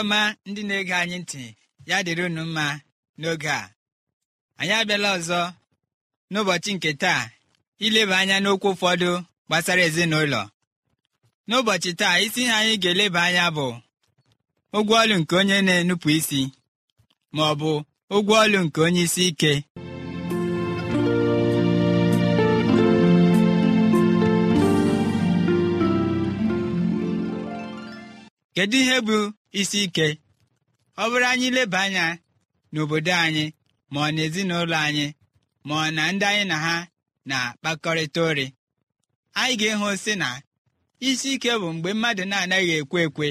ọma ndị na-ege anyị ntị ya dịrị unu mma n'oge a anyị abịala ọzọ n'ụbọchị nke taa ileba anya n'okwu ụfọdụ gbasara ezinụlọ n'ụbọchị taa isi ihe anyị ga-eleba anya bụ ụgwọ ọlụ nke onye na-enupụ isi ma ọ bụ ụgwọ ọlụ nke onye isi ike kedu ihe bụ isi ike ọ bụrụ anyị leba anya n'obodo anyị ma ọ na ezinụlọ anyị ma ọ na ndị anyị na ha na-akpakọrịta ori anyị ga ehụ si na isi ike bụ mgbe mmadụ na-anaghị ekwe ekwe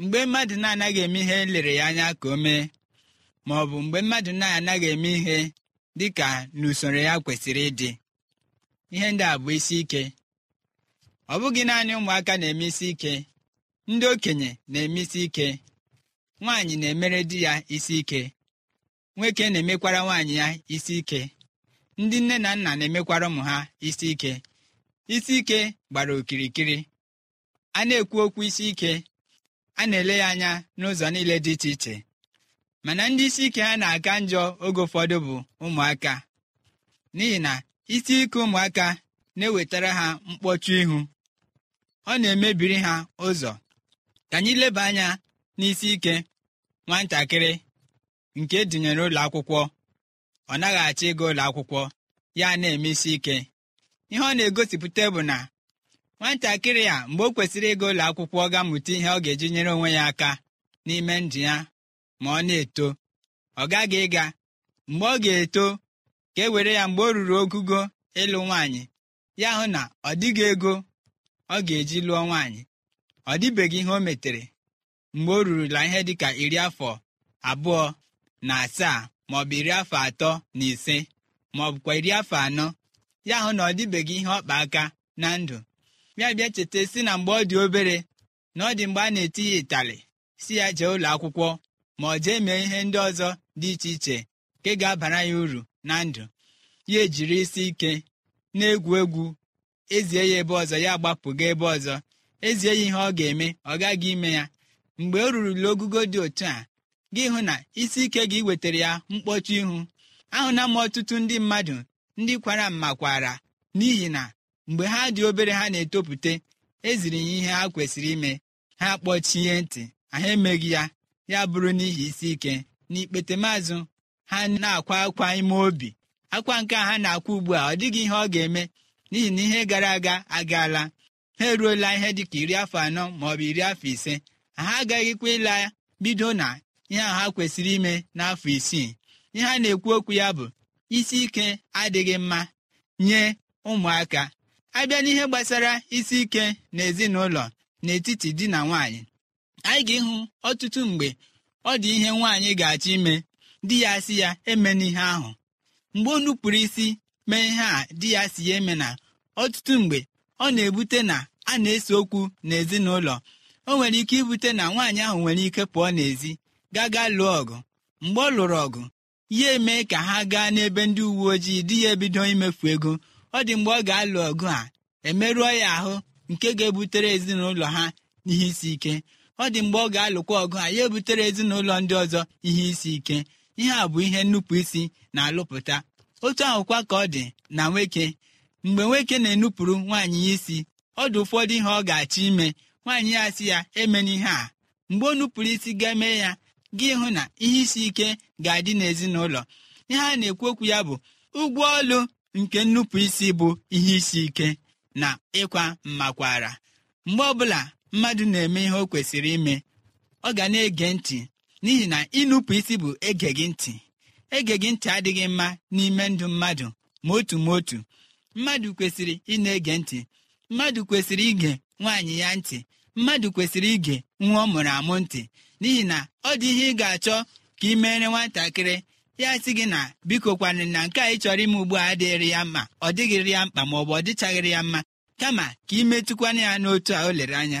mgbe mmadụ na-anaghị eme ihe lere ya anya ka o mee ma ọ bụ mgbe mmadụ na-anaghị eme ihe dị ka n'usoro ya kwesịrị ịdị ihe ndị a bụ isi ike ọ bụghị naanị ụmụaka na-eme isi ike ndị okenye na eme isi ike nwaanyị na-emere di ya isi ike nwoke na-emekwara nwaanyị ya isi ike ndị nne na nna na-emekwara ụmụ ha isi ike isi ike gbara okirikiri a na-ekwu okwu isi ike a na-ele ya anya n'ụzọ niile dị iche iche mana ndị isi ike ha na-aka njọ oge ụfọdụ bụ ụmụaka n'ihi na isi ike ụmụaka na-ewetara ha mkpọchu ihu ọ na-emebiri ha ụzọ ka anyị leba anya n'isi ike nwatakịrị nke edunyere ụlọ akwụkwọ ọ naghị achọ ịga ụlọ akwụkwọ ya na-eme isi ike ihe ọ na-egosipụta bụ na nwatakịrị a mgbe o kwesịrị ịga ụlọ akwụkwọ ga mụta ihe ọ ga-eji nyere onwe ya aka n'ime ndụ ya ma ọ na-eto ọ gaghị ịga mgbe ọ ga-eto ka e were ya mgbe ọ ruru ogugo ịlụ nwaanyị ya hụ na ọ dịghị ego ọ ga-eji lụọ nwaanyị ọ dịbeghị ihe o metere mgbe o rurula ihe dịka iri afọ abụọ na asaa maọbụ iri afọ atọ na ise bụkwa iri afọ anọ ya hụ na ọ dịbeghị ihe ọkpa aka na ndụ bịa bịa cheta si na mgbe ọ dị obere na ọ dị mgbe a na-eti ya ịtalị si ya jee ụlọ akwụkwọ ma ọ jee mee ihe ndị ọzọ dị iche iche nke ga-abara ya uru na ndụ ya ejiri isi ike na-egwu egwu ezie ya ebe ọzọ ya gbapụga ebe ọzọ ezie ya ihe ọ ga-eme ọ gaghị ime ya mgbe o rurula ogugo dị otu a gị hụ na isi ike gị wetara ya mkpọchi ihu ahụna m ọtụtụ ndị mmadụ ndị kwara mma kwara n'ihi na mgbe ha dị obere ha na etopụta eziri ya ihe ha kwesịrị ime ha kpọchie ntị ha emeghị ya ya bụrụ n'ihi isi ike n'ikpete ha na-akwa akwa ime obi akwa nke a ha na-akwa ugbu a ọ dịghị ihe ọ ga-eme n'ihi na ihe gara aga agaala ha eruola ihe dịka iri afọ anọ maọbụ iri afọ ise ha agaghịkwa ịla bido na ihe a ha kwesịrị ime n'afọ isii ihe a na-ekwu okwu ya bụ isi ike adịghị mma nye ụmụaka abịa n'ihe gbasara isi ike n'ezinụlọ n'etiti di na nwaanyị anyị ga-ịhụ ọtụtụ mgbe ọ dị ihe nwaanyị ga-achọ ime di ya si ya eme n'ihe ahụ mgbe o nupụrụ isi mee ihe a di ya si ya eme na ọtụtụ mgbe ọ na-ebute na a na-ese okwu n'ezinụlọ o nwere ike ibute na nwaanyị ahụ nwere ike pụọ n'ezi gaa gaa lụọ ọgụ mgbe ọ lụrụ ọgụ ya eme ka ha gaa n'ebe ndị uwe ojii di ya ebido imefu ego ọ dị mgbe ọ ga-alụ ọgụ a emerụọ ya ahụ nke ga-ebutere ezinụlọ ha ihe isi ike ọ dị mgbe ọ ga-alụkwa ọgụ a ya ebutere ezinụlọ ndị ọzọ ihe isi ike ihe a bụ ihe nnupụ isi na-alụpụta otu ahụkwa ka ọ dị na nwoke mgbe nwoke na-enupụrụ nwaanyị ya isi ọ dị ụfọdụ ihe ọ ga-achọ ime nwaanyị ya sị ya emena ihe a mgbe ọ nupụrụ isi ga-eme ya gị hụ na ihe isi ike ga-adị n'ezinụlọ ihe a na-ekwu okwu ya bụ ụgwọ ọlụ nke nnupụ isi bụ ihe isi ike na ịkwa mmakwara mgbe ọbụla mmadụ na-eme ihe o kwesịrị ime ọ ga na-ege ntị n'ihi na ịnụpụ isi bụ ege gị ntị ege gị ntị adịghị mma n'ime ndụ mmadụ ma otu ma otu mmadụ kwesịrị ị na-ege ntị mmadụ kwesịrị ige nwaanyị ya ntị mmadụ kwesịrị ige nwa ọ mụrụ amụ ntị n'ihi na ọ dị ihe ị ga-achọ ka ị meere nwatakịrị ya sị gị na biko kwanị na nke a ị chọrọ ime ugbu a adịghịrị ya mma ọ dịghịrị ya mkpa ma ọ bụ ọ dịchaghịrị ya mma kama ka ị metụkwana ya n'otu a o lere anya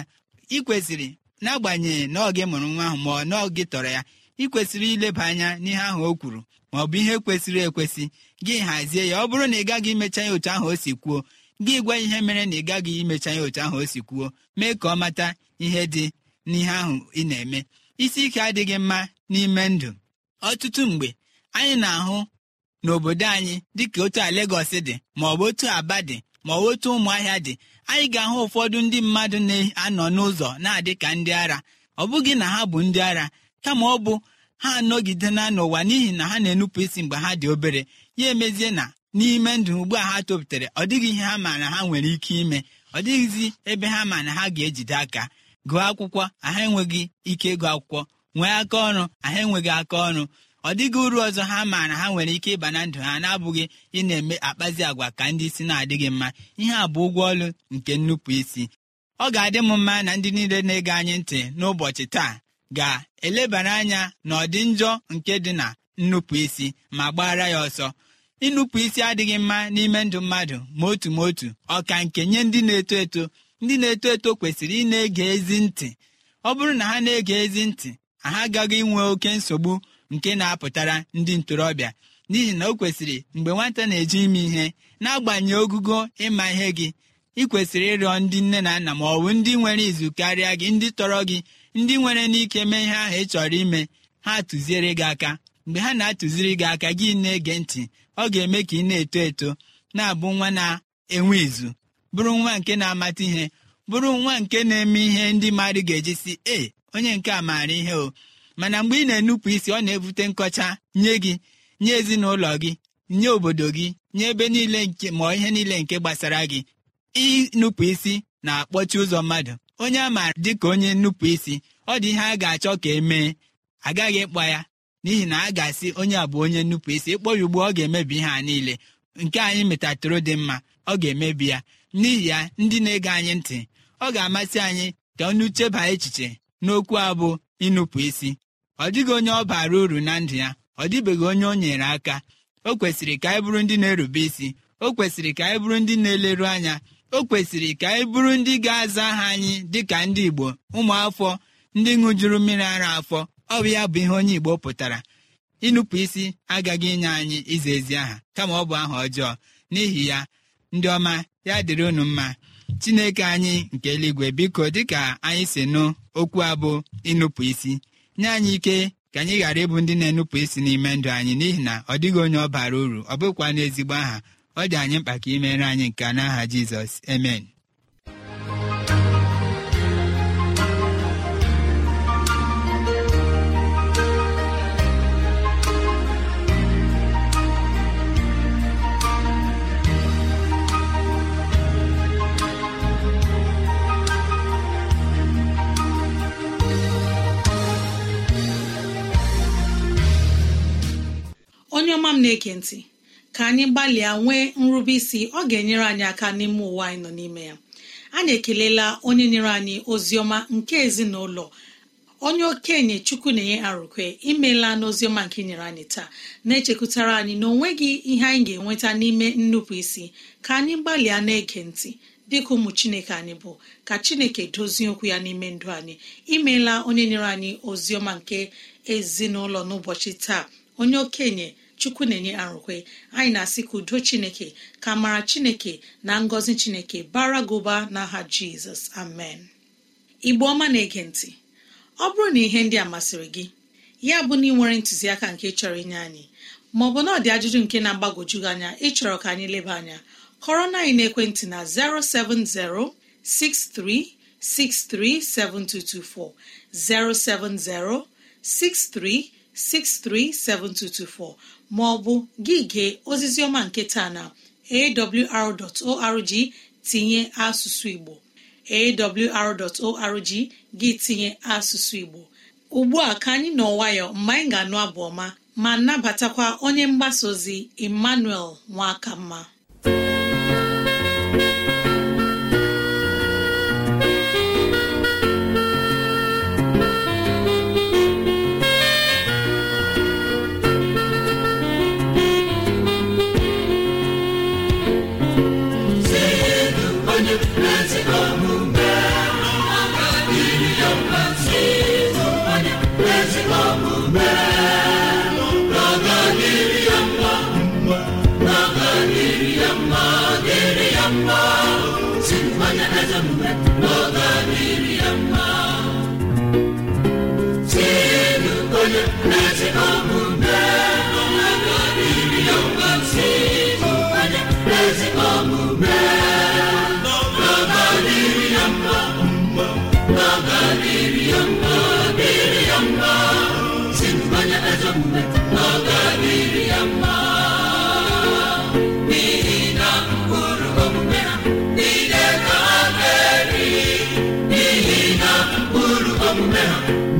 ị kwesịrị n'agbanyeghị na ọ gị mụrụ nwa ahụ ma ọ na ọ gị tọrọ ya ị kwesịrị ileba anya n'ihe ahụ o kwuru ma ọ bụ ihe kwesịrị ekwesị gị hazie ya ọ bụrụ na ị gaghị imecha ya otu ahụ o si kwuo gị gwa ihe mere na ị gaghị imecha ya otu ahụ o si kwuo mee ka ọ mata ihe dị n'ihe ahụ ị na-eme isi ike adịghị mma n'ime ndụ ọtụtụ mgbe anyị na-ahụ n'obodo anyị dịka otu a Legọs dị ma ọ bụ otu Aba dị ma ọ bụ otu ụmụahịa dị anyị ga-ahụ ụfọdụ ndị mmadụ na-anọ n'ụzọ na-adị ka ndị ara ọ bụghị na ha bụ ndị ara kama ọ bụ ha anọgide na n'ụwa n'ihi na ha na-enupụ isi mgbe ha dị obere ya emezie na n'ime ndụ ugbu a ha topụtara ọ dịghị ihe ha ma na ha nwere ike ime ọ dịghịzi ebe ha ma na ha ga-ejide aka gụọ akwụkwọ aha enweghị ike ịgụ akwụkwọ nwee aka ọrụ aha enweghị aka ọrụ ọ dịghị uru ọzọ ha ma na ha nwere ike ịba na ndụ ha na-abụghị ị na-eme akpazi agwa ka ndị isi na-adịghị mma ihe a bụ ụgwọ ọlụ nke nnupụ isi ọ ga-adị m mma na ndị niile na-ege anyị ntị n'ụbọchị taa ga-elebara anya na ọdị njọ nke dị na nnupụ isi ma gbara ya ọsọ ịnụpụ isi adịghị mma n'ime ndụ mmadụ ma otu ma otu ọka nke nye ndị na-eto eto ndị na-eto eto kwesịrị ị na-ege ezi ntị ọ bụrụ na ha na-ege ezi ntị ha agaghị inwe oke nsogbu nke na-apụtara ndị ntorobịa n'ihi na o kwesịrị mgbe nwata na-eji ime ihe na-agbanye ogugo ịma ihe gị ị kwesịrị ịrịọ ndị nne na nna ma ọ bụ ndị nwere izu karịa gị ndị tọrọ gị ndị nwere n'ike mee ihe ahụ ị chọrọ ime ha tụziere gị aka mgbe ha na-atụziri gị aka gị na-ege ntị ọ ga-eme ka ị na-eto eto na-abụ nwa na-enwe izu bụrụ nwa nke na-amata ihe bụrụ nwa nke na-eme ihe ndị mmadụ ga-eji si ee onye nke a maara ihe o mana mgbe ị na-enupụ isi ọ na-ebute nkọcha nye gị nye ezinụlọ gị nye obodo gị nye ebe niile nke ma ihe niile nke gbasara gị ịnupụ isi na-akpọchi ụzọ mmadụ onye a maara dịka onye nnupụ isi ọ dị ihe a ga-achọ ka e mee, agaghị ịkpọ ya n'ihi na a ga-asị onye a bụ onye nnupụ isi ịkpọ ya ugbu ọ ga-emebi ihe a niile nke anyị metatụrụ dị mma ọ ga-emebi ya n'ihi ya ndị na-ege anyị ntị ọ ga-amasị anyị ka ọnụ cheba echiche n'okwu a bụ ịnụpụ isi ọ dịghị onye ọ bara uru na ndụ ya ọ dịbeghị onye o nyere aka o kwesịrị ka anyị bụrụ ndị na-erube isi o kwesịrị ka anyị bụrụ ndị na-eleru anya o kwesịrị ka anyị bụrụ ndị ga-aza aha anyị dịka ndị Igbo ụmụafọ ndị ṅụjuru mmiri ara afọ ọ bụ ya bụ ihe onye Igbo pụtara ịnụpụ isi agaghị inye anyị iza ezi aha kama ọ bụ aha ọjọọ n'ihi ya ndị ọma ya dịrị unu mma Chineke anyị nke eluigwe biko dịka anyị si nụ okwu abụ ịnụpụ isi nye anyị ike ka anyị ghara ịbụ ndị na-enupụ isi n'ime ndụ anyị n'ihi na ọ dịghị onye ọ bara uru ọ bụkwa n'ezigbo aha ọ dị anyị mkpa ka imere anyị nke n'aha Jizọs amen na-ege ntị ka anyị gbalịa nwee nrube isi ọ ga-enyere anyị aka n'ime ụwa anyị nọ n'ime ya anyị ekelela onye nyere anyị ozi ọma nke ezinụlọ onye okenye chukwu na-enye arụkwe imeela n'oziọma nke nyere anyị taa na-echekwutara anyị na onweghị ihe anyị ga-enweta n'ime nnupụ isi ka anyị gbalịa na-ege ntị dịka ụmụ chineke anyị bụ ka chineke dozie okwu ya n'ime ndụ anyị imeela onye nyere anyị oziọma nke ezinụlọ n'ụbọchị taa onye okenye chukwu na-enye arụkwe anyị na-asị ka udo chineke ka mara chineke na ngọzi chineke bara gị n'aha jizọs amen igbo ọma na-ege ntị ọ bụrụ na ihe ndị a masịrị gị ya bụ na ị nwere ntụziaka nke chọrọ inye anyị maọbụ na ọ dị ajụjụ nke na-agbagwoju gị anya ịchọrọ ka anyị leba anya kọrọ na anyị n'ekwentị na 070 07063 637224 maọbụ gị gee oziziọma nketa na awr.org tinye asụsụ Igbo awr.org gị tinye asụsụ Igbo ugbu a ka anyị nọ nwayọ mgbe anyị ga-anụ abụ ọma ma nabatakwa onye mgbasa ozi Emmanuel mma. music.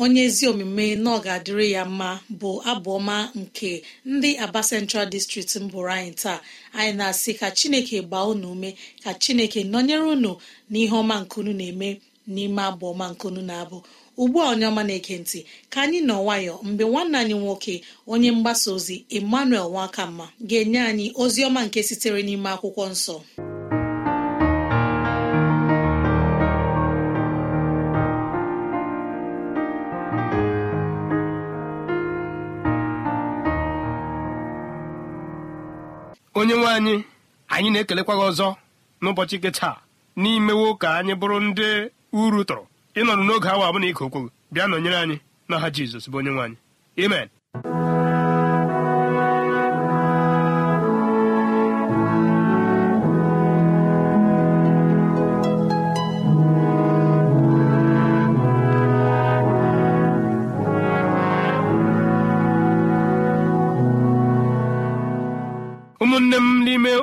onye ezi omume na ọ ga-adịrị ya mma bụ abụọma nke ndị aba central district mbụrụ anyị taa anyị na-asị ka chineke gbaa unu ume ka chineke nọnyere unu n'ihe ọma nkunu na-eme n'ime abụọma nkunu na-abụ ugbu a onye ọma na ekentị ka anyị nọ nwayọ mgbe nwanne anyị nwoke onye mgbasa ozi emmanuel nwakamma ga-enye anyị ozi ọma nke sitere n'ime akwụkwọ nsọ onye nwe anyị anyị na-ekelekwa gị ọzọ n'ụbọchị nke taa n'imewo ka anyị bụrụ ndị uru tụrụ ịnọrụ n'oge awa abụna ike okwu bịa nọnyere anyị n'aha Jizọs bụ onye nwe anyị amen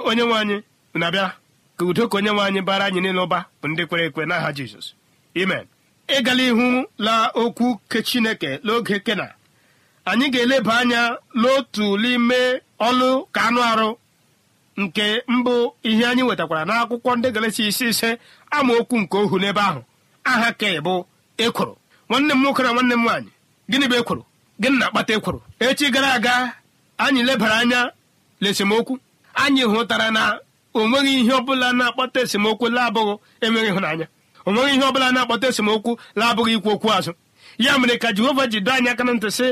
onye nwe anyị na abịa ka udo ka onye nwe anyị bara anyị niile ụba bụ ndị kwere ekwe n'aha jizọs imen ịgala ihu la okwu ke chineke n'oge kena anyị ga-eleba anya n'otu n'ime ọlụ ka anụ arụ nke mbụ ihe anyị wetakwara n'akwụkwọ ndị galesi isi ise amaokwu nke ohu n'ebe ahụ aha ke bụ ekworo nwanne m nwoke na nwanne m nwaanyị gịnị bụ ekworo gịnị na-akpata ekworo echi gara aga anyị lebara anya esemokwu. anyị hụtara na o nweghị ihe ọbụla na-akpọta esemokwu labụghị enweghị ịhụnanya o nweghị ihe ọbụla na-akpọta esemokwu labụghị ikwu okwu azụ ya mere ka jehova ji doo anyị aka na ntị sị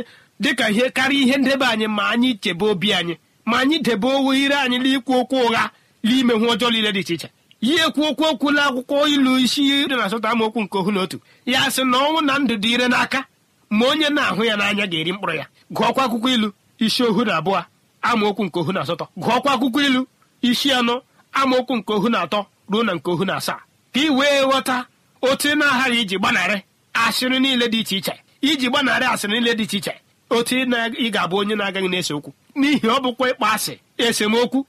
dịka ihe karịa ihe ndebe anyị ma anyị chebe obi anyị ma anyị debe owu ire anyị n'ikwu okwu ụgha n'ime hụ ọjọọ niile dị iche iche ya ekwu okwu okwu la akwụkwọ ilu isi ire na asatọ amaokwu nke ohu na otu ya sị na ọnwụ na ndụ dị ire n'aka ma onye na-ahụ ya n'anya ga-eri mkpụrụ ya gụọkwa akwụkwọ ilu isi ohu na abụọ amaokwu nke ohu na asatọ gụọkwa akwụkwọ ilu isi anọ amaokwu nke ohu na atọ ruo na nke ohu na asaa ka ị wee ghọta otu ị na-aghara iji gbanarị asịrị niile dị iche iche iji gbanarị asịrị niile dị iche iche otu ị ga-abụ onye na-agaghị na-ese okwu n'ihi ọ bụkwa ịkpa asị esemokwu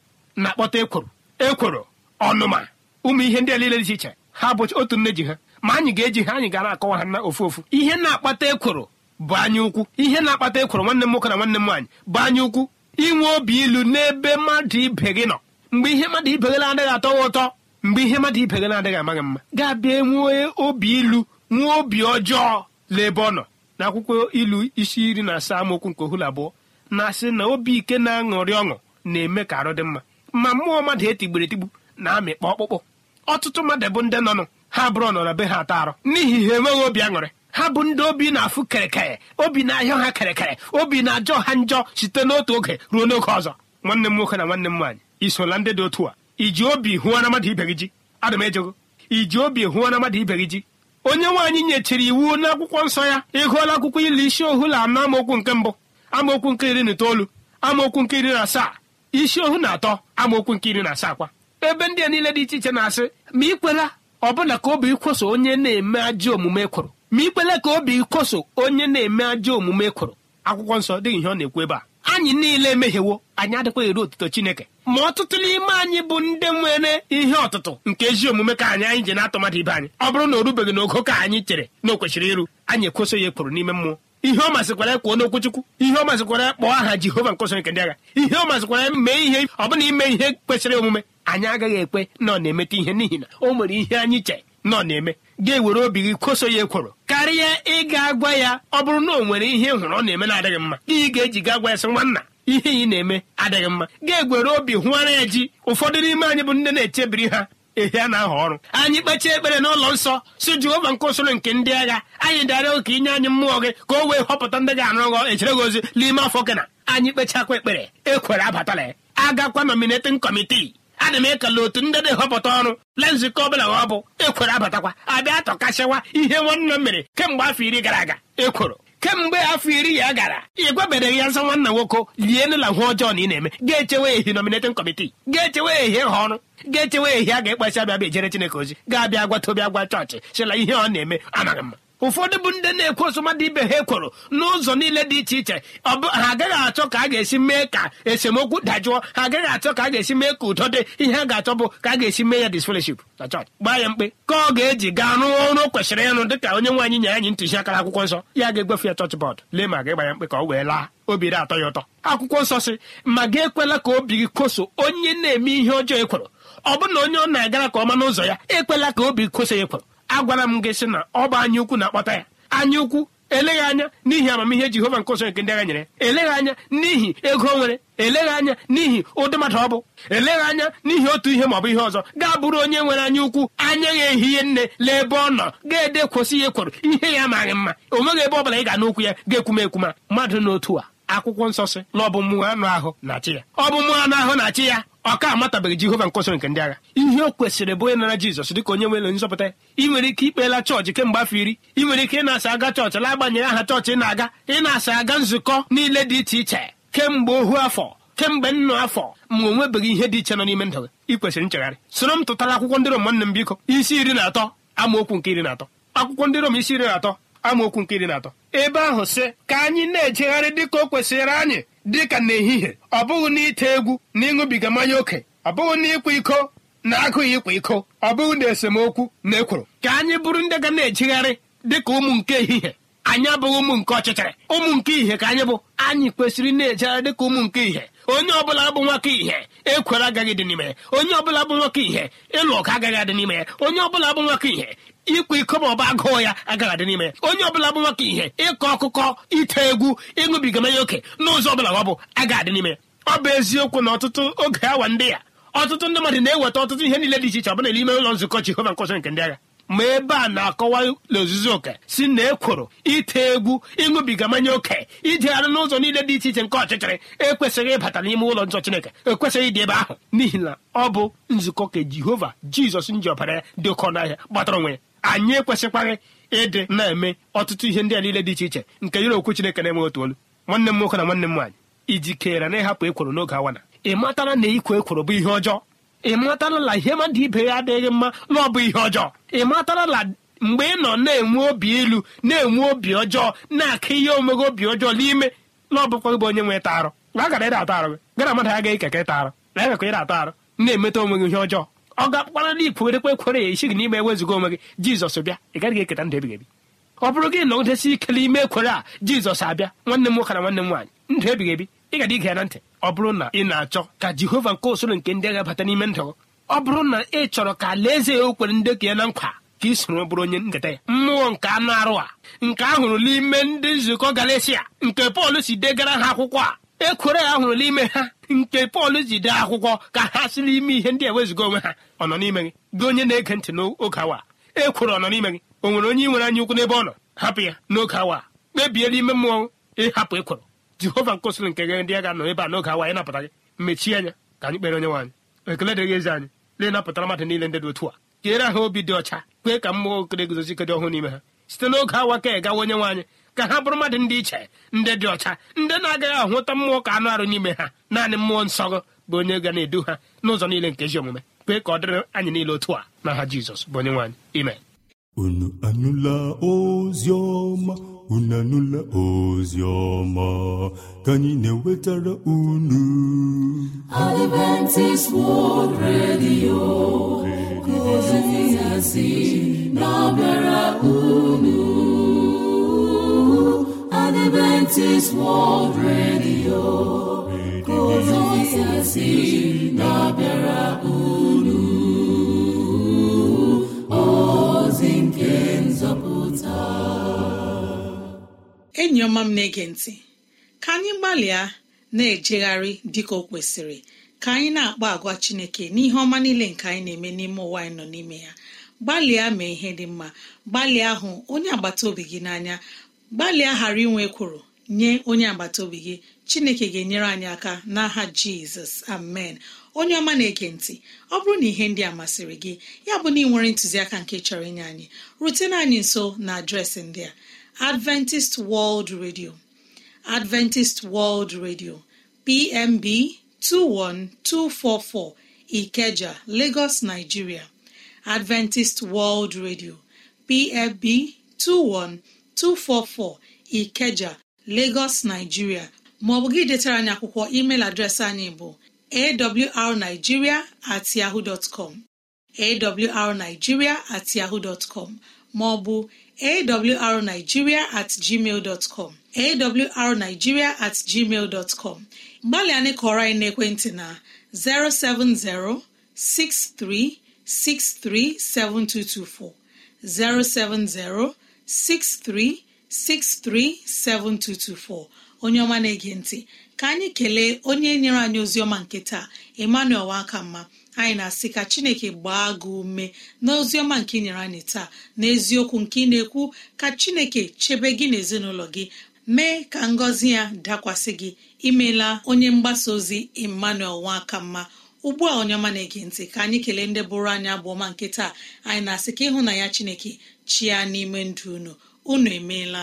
na-akpọta ekworo ekworo ọnụma ụmụ ihe ndị a niile dị iche iche ha bụ otu nne ji ha ma anyị ga-eji ha anyị gara akọwa ha na ofu ofu ihe na-akpata ekworo bụ anya ukwu ihe na-akpata ekworo nwanne m nwoke na nwanne m nwaanyị bụ anya ukwu inwe obi ilu n'ebe mmadụ ibe gị nọ mgbe ihe mmadụ ibe gị na-adịghị atọ gị ụtọ mgbe ihe mmadụ ibe gị na-adịghị amaghị mma ga-abịa nwee obi ilu nwee obi ọjọọ n'ebe ọ nọ na akwụkwọ ilu isi iri na asaa amaokwu nke ohulu abụọ na-asị na obi ike na-aṅụrị ọṅụ na-eme ka arụ dị mma ma mmụọ mmadụ etigburu etigbu na-amịkpa ọkpụkpụ ọtụtụ mmadụ bụ ndị nọnụ ha bụrụ nọ na be ha ata arụ n'ihi ha enweghị obi aṅụrị ha bụ ndị obi na-afụ kerekere obi na-ahịa ha kerekere obi na-ajọ ha njọ site n'otu oge ruo n'oge ọzọ nwanne m nwoke na nwanne m nwaanyị isola ndị dị otu a iji obi hụọ na mmadụ ibe gị ji ada ejego iji obi hụọ na mmadụ ibe gị ji onye nwaanyị nyechiri iwu n'akwụkwọ nsọ ya ịgụọla akwụkwọ ili isi ohu na ama amaokwu nke mbụ amaokwu nke iri na itoolu amaokwu nke iri na asaa isi ohu na atọ amaokwu nke iri na asaa kwa ebe ndị a niile dị iche iche na-asị ma ị kwela bụla ka obi ikweso onye na-eme ajọ omume kwụrụ ma ikwele ka obi kwoso onye na-eme ajọ omume kwụrụ akwụkwọ nsọ dịghị ihe ọ na-ekwu ebe a anyị niile emehiewo anyị adịkwaghị eru otuto chineke ma ọtụtụ n'ime anyị bụ ndị nwere ihe ọtụtụ nke ezi omume ka anyị anyị ji na-atọ ibe anyị ọ bụrụ na o rubeghị n'ogo ka anyị chere na o kwesịrị iru anyị ekweso ya ekworo n'ime mmụọ ihe ọ masịkwara ya kwuo n'okwuchukwu. ihe ọ masịkwara kpọọ aha jehova nkọsọ nke ndị agha ihe ọ masịkwara mee ihe ọ bụna ime ihe kwesịrị omume anyị agaghị ekwe na ọ na-emeta ihe n'ihi na o nwere ihe anyị che na ọ na-eme ga-ewere obi gị koso ya ekworo karịa ịga gwa ya ọ bụrụ na o nwere ihe hụrụ ọ na-eme na-adịghị mma gị ị ga-eji ga gwa ya sị nwanna ihe ị na-eme adịghị mma ga-egwere obi hụara ya ji ụfọdụ n'ime anyị bụ ndị na-echebiri ha ehe a na-ahọ ọrụ anyị kpechaa ekpere n'ụlọ nsọ si Jehova nke usoro nke ndị agha anyị dịara ụka inye anyị mmụọ gị ka o wee họpụta ndị ga-arụ echere gị ozi n'ime afọ gị na anyị kpechakwa ekpere ekwere abatala agakwa nominating kọmitii ana m ekele otu ndị na-ehọpụta ọrụ le nzukọ ọbụla ọ bụ ekworo abatakwa abịa tọkasịwa ihe nwanne m mere kemgbe afọ iri gara aga ekworo kemgbe afọ iri ya gara ị gwabereghị ya nsọ nwanna nwoke lie nela hụ ọjọọ na ị na-eme ga-echewe ehi nominating kọmitii ga-echewe ehi ha ọrụ ga-echewe ehi a ga-ekpesị abịa bịa ejere Chineke ozi ga-abịa gwa tobi agwa chọọchị chịla ihe ọ na-eme amaghị mma ụfọdụ bụ ndị na-ekwe osọmadụ ibe ha ekworo n'ụzọ niile dị iche iche ha agaghị achọ ka a ga-esi mee ka esemokwu dajụọ ha agaghị achọ ka a ga-esi mee ka udo dị ihe a ga-achọ bụ ka a ga-esi mee ya disfellowship na chọọchị gbaa ya mkpe ka ọ ga-eji gaa rụọ ọrụ kwesịrị ịrụ dịka onye nwaanyị nya anyị ntụziaka akwụkwọ nsọ ya ga egwefe ya chọọchị bọọdụ lee ma ga-agba ya mkpe ka ọ wee laa obi dị atọ ya ụtọ akwụkwọ nsọ sị ma gị ekwela ka obi gị koso onye na-eme ihe ọjọọ ekworo ọ bụrụ na onye ọ na-agara ka ọma n'ụzọ ya ekwela ka obi koso ekworo agwara m gị sị na ọ bụ anya ukwu na-akpata ya anya ukwu eleghị anya n'ihi amamihe jehova nke nsọ nke ndị agha nyere eleghị anya n'ihi ego nwere eleghị anya n'ihi ụdị mmadụ ọ bụ eleghị anya n'ihi otu ihe maọbụ ihe ọzọ ga bụrụ onye nwere anya ukwu anya ya ihe nne lee ebe ọ nọ ga-ede kwụsị ya ekworo ihe ya amaghị mma o nweghị ebe ọ bụla ị ga n'okwu ya ga-ekwume ekwuma mmadụ n'otu a akwụkwọ nsọ si na ọ bụ mmụọ anụ ahụ na achị ya ọ bụ mmụọ anụ ahụ na ya ọka amatabeghị jehova nkọsịrị nke ndị agha ihe o kwesịrị bụ onye nara jizọs dịka onye nwere nzọpụta ị nwere ike ikpeela chọọchị kemgbe afọ iri ị nwere ike ị na-asa aga chọọchị la agbanyere aha chọọchị ị na-aga ị na-asa aga nzukọ niile dị iche iche kemgbe ohu afọ kemgbe nnụ afọ ma o nwebeghị ihe dị iche nọ n'ime ndụ gị ị kwesịrị nchegharị soro m tụtara akwụkwọ ndị Rom m biko isi iri na atọ amaokwu nke iri na atọ akwụkwọ ndị Rom isi iri na atọ amaokwu nke iri na atọ ebe ahụ sị ka anyị na-ejegharị dị ka o kwesịrị anyị dị ka n'ehihie ọ bụghị n'ite egwu na ịṅụbiga mmanya ókè. ọ bụghị na ịkwa iko na agụghị ịkwa iko ọ bụghị na esemokwu na ekworo ka anyị bụrụ ndị ga na-ejigharị dị ka ụmụ nke ehihie anyị abụghị ụmụ nke ọchịchịrị ụmụ nke ihe ka anyị bụ anyị kwesịrị na-ejegharị dị ka ụmụ nke ihe onye ọbụla bụ nwoke ihe ekwere agaghị dị n'ime onye ọbụla bụ nwoke ihe ịlụ ọgụ agaghị adị n'ime onye ọbụla bụ nwoke ihe ịkwa iko ma agụụ ya agaghị adị n'ime onye ọbụla bụ nwoke ihe ịkọ ọkụkọ ite egwu ịṅụbiga mmanya oke n'ụzọ ọbụla ọ bụ agaghị adị n'ime ọ bụ eziokwu na ọtụtụ oge awa ndị ya ọtụtụ ndị mmadụ na-eweta ọtụtụ ihe niile dị iche iche ọbụla n'ime ụlọ nzukọ Jehova nkọsọ nke ndị agha ma ebe a na-akọwa n'ozuzu oke si na ekworo ite egwu ịṅụbiga mmanya oke ijegharị n'ụzọ niile dị iche iche nke ọchịchịrị ekwesịghị ịbata n'ime ụlọ nsọ Chineke ekwesịghị ịdị ebe ahụ n'ihi na ọ bụ nzukọ ka Jehova Jizọs nji ọbara ya dị oke ọnụahịa gbatara onwe ya anyị ekwesịkwaghị ịdị na-eme ọtụtụ ihe ndị a niile dị iche iche nke yiri okwu Chineke na-enweghị otu olu nwanne m nwoke na nwanne m nwaanyị ijikere na ịhapụ ekworo n'oge awana ị matara na ịkwa ekworo bụ ihe ọjọọ ị matala na ihe mmadụ ibe ya adịghị mma na ọ bụ ihe ọjọọ ị matala na mgbe ị nọ na-enwe obi ilu na-enwe obi ọjọọ na-akụ ihe omeghe obi ọjọọ n'ime na ọ bụkwa bụ onye nwe ịta arụ agara ịda atọ arụ gị gara mmadụ agaghị ekeke ịta na agakwa ịda atọ arụ na-emeta onwe gị ihe ọjọọ ọ ga-akpara na ikwerekwe ekwere ya isi gị n'ime ewezuga onwe gị jizọs bịa ị gaghị eketa ndụ ebighị ebi ọ bụrụ gị na nọgidesi ike n'ime ekwere a jizọs abịa nwanne m nwoke na nwanne m nwaanyị ndụ ebighị ebi ị ga ige ya na ntị ọ bụrụ na ị na-achọ ka jehova nke usoro nke ndị agha bata n'ime ndụ ọ bụrụ na ị chọrọ ka alaeze ya okwere ndekọ ya na nkwa ka ị bụrụ onye nketa ya mmụọ nke anụ arụ a nke a hụrụ n'ime ndị nzukọ galesia nke pọl si degara ha akwụkwọ a ekwere ya hụrụ n'ime ha nke pọl ji dee akwụkwọ ka ha si n'ime ihe ndị eweziga onwe ha ọ nọ n'ime gị gị onye na-ege ntị n'oge awa ekwere ọ nọ n'ime gị o nwere onye nwere anya ukwu n'ebe ọ nọ hapụ ya n'oge awa kpebie n'ime mmụọ ịhapụ ekwere jehova nke nke gere ndị a ga-anọ ebe a n'oge awa anyị napụta gị mechie anya ka anyị kpere onye nwaanyị ekele dịrị ezi anyị na-enapụtara mmadụ niile ndị dị otu a jere ha obi dị ọcha kwee ka mmụọ okere guzozi dị ọhụụ n'ime ha site n'oge awa ka e gawa onye nwaanyị ka ha bụrụ mmadụ ndị iche ndị dị ọcha ndị na-agaghị ahụta mmụọ ka anụ arụ n'ime ha naanị mmụọ nsọ bụ onye ga na-edu ha n'ụzọ niile nke ezi omume kwee ka ọ dịrị anyị niile otu a n'aha Jizọs bụ onye nwaanyị ime unu anụla ozi ọma unu anụla ozi ọma ka anyị na-ewetara unu Adventist World Radio kozizasi na-abịara unu Adventist World Radio kozizasi na-abịara unu enyi ọma m na-ege ntị ka anyị gbalịa na-ejegharị dịka o kwesịrị ka anyị na-akpa agwa chineke n'ihe ọma niile nke anyị na-eme n'ime ụwa anyị nọ n'ime ya gbalịa mee ihe dị mma gbalịa hụ onye agbata obi gị n'anya gbalịa ghara inwe ekworo nye onye agbata obi gị chineke ga-enyere anyị aka n'aha jizọs amen onye ọma na-ege ntị ọ bụrụ na ihe ndị a masịrị gị ya bụ na ị nwere ntụziaka nke chọrọ inye anyị rutena anyị nso na adreesị ndị a adventist world radio adventist world radio pmb 21244 ikeja lagos nigeria adventist world radio pmb 21244 ikeja lagos nigeria maọbụ gị detara anyị akwụkwọ email adreesị anyị bụ awrnigeria at yahoo dot com awrnigeria at yahoo dot com maọbụ awrnigeria at gmail dot com awrnigeria at gmail dot com gbalịa anyị kọrọ anyị n'ekwentị na 070 07063637224 07063637224 onye ọma na-ege ntị ka anyị kelee onye nyere anyị ozi ọma nke taa emmanuel wakamma anyị na-asị ka chineke gbaa gị ume n'oziọma nke ị nyere anyị taa n'eziokwu nke ị na-ekwu ka chineke chebe gị na gị mee ka ngọzi ya dakwasị gị imela onye mgbasa ozi emmanuel nwakamma ugbu a onye ọma na-ege ntị ka anyị kelee ndị bụrụ anyị bụ ọma nke taa anyị na-asị ka ịhụ na ya chineke chia n'ime ndụ unu unu emeela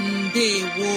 ndewo